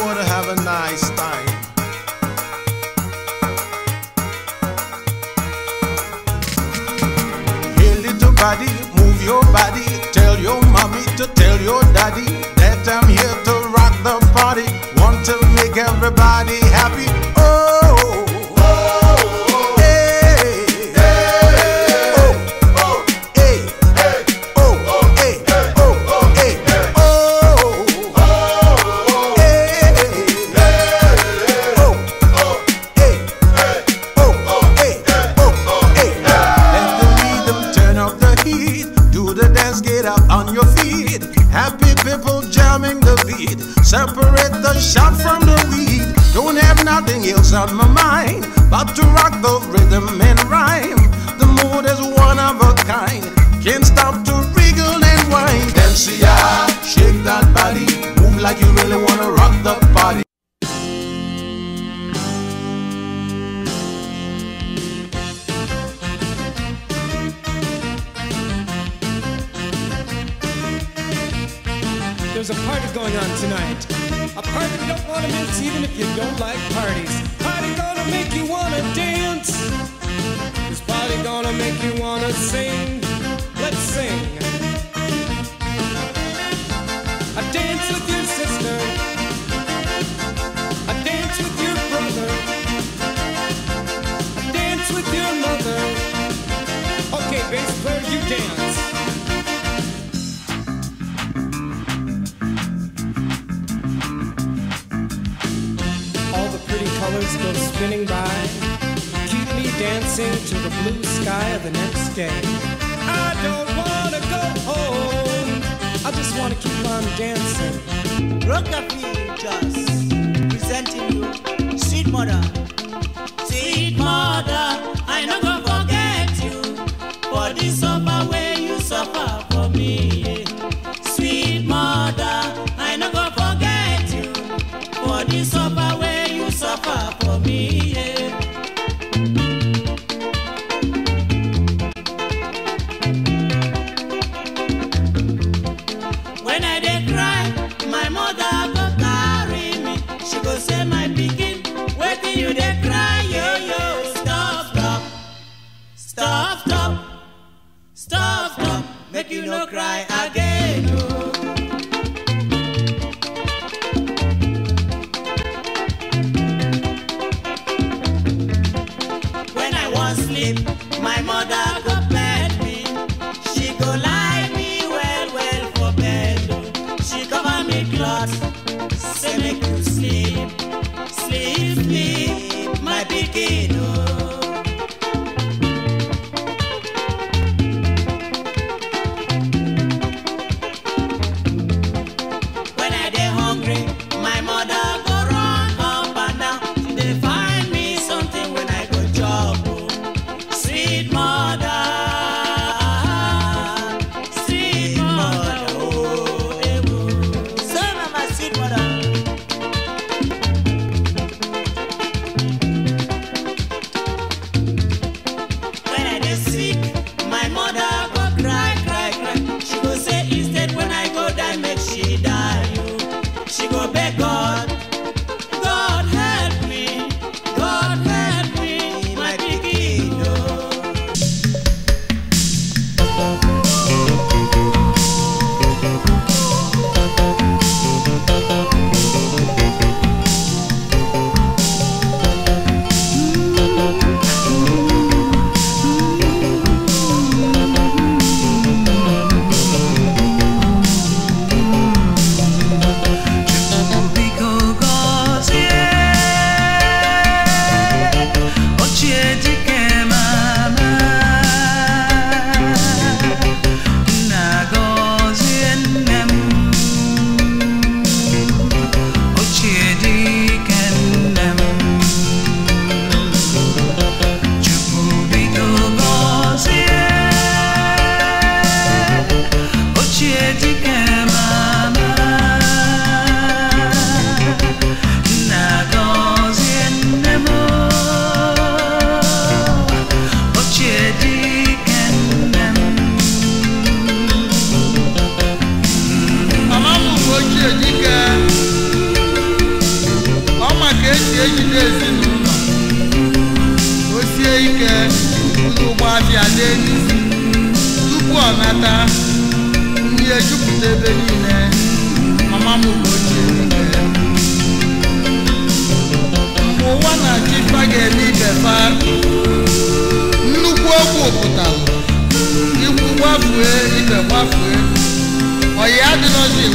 want to have a nice time. Hey, little move your body. Tell your mommy to tell your daddy that I'm here to rock the party. Want to make everybody on my mind. About to rock the rhythm and rhyme. The mood is one of a kind. Can't stop to wriggle and whine. shake that body. Move like you really wanna rock the party. There's a party going on tonight. A party you don't want to miss even if you don't like parties gonna make you wanna dance. This party gonna make you wanna sing. Let's sing. passing by keep me dancing to the blue sky of the next day. I don't wanna go home. I just wanna keep on dancing. Rockabilly just presenting you, Sweet Mother. Sweet Mother, I no go forget you for this. you cry, yo yo. Stop, stop, stop, stop, stop, stop. Make you no cry again.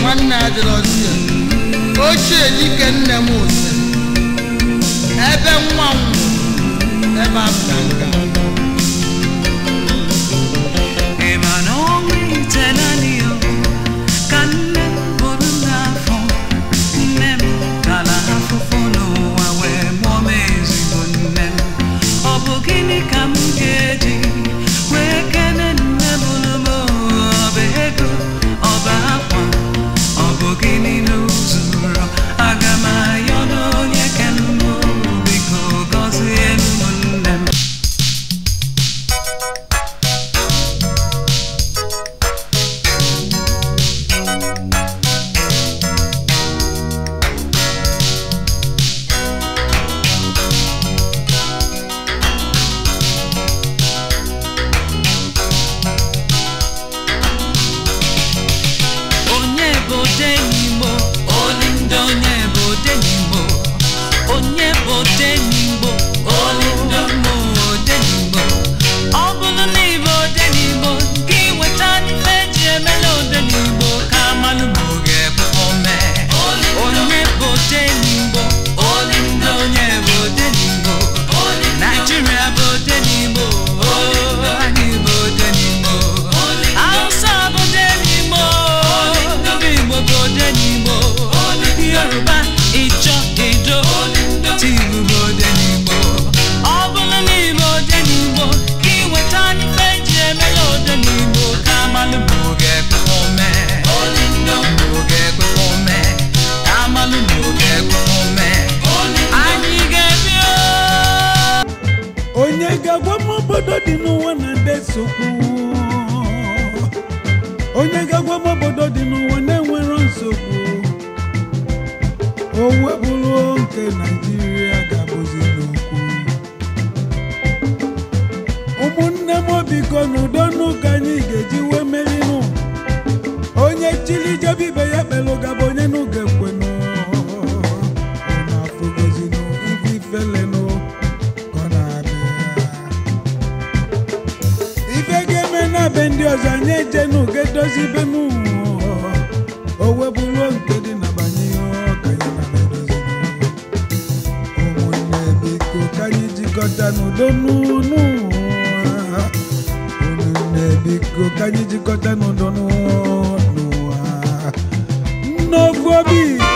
nwanne adịrọzie ochie dike nne m ose ebe nwa m ebe afọ nka ike naijiria ga-abụzi n'okwu ụmụnne m biko n'udo n'ụka anyị ga-eji wee merinụ onye chili jebe ibe ya kpelụ gaba onye n'ụga ekwenụ na-afụgozinụ ibe ifelenụ ife ga-eme na be ndị ọzọ anyị ejenụ ga-edozi ibenụ n'udo n'ụlọ biko ka anyị jikọta obi